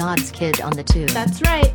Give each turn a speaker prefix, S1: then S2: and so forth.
S1: God's Kid on the Tube. That's right.